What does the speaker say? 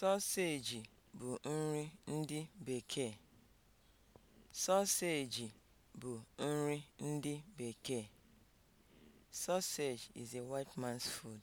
Sọseji bụ nri ndị bekee. Sausage bụ nri ndị bekee. Sausage is a white man's food.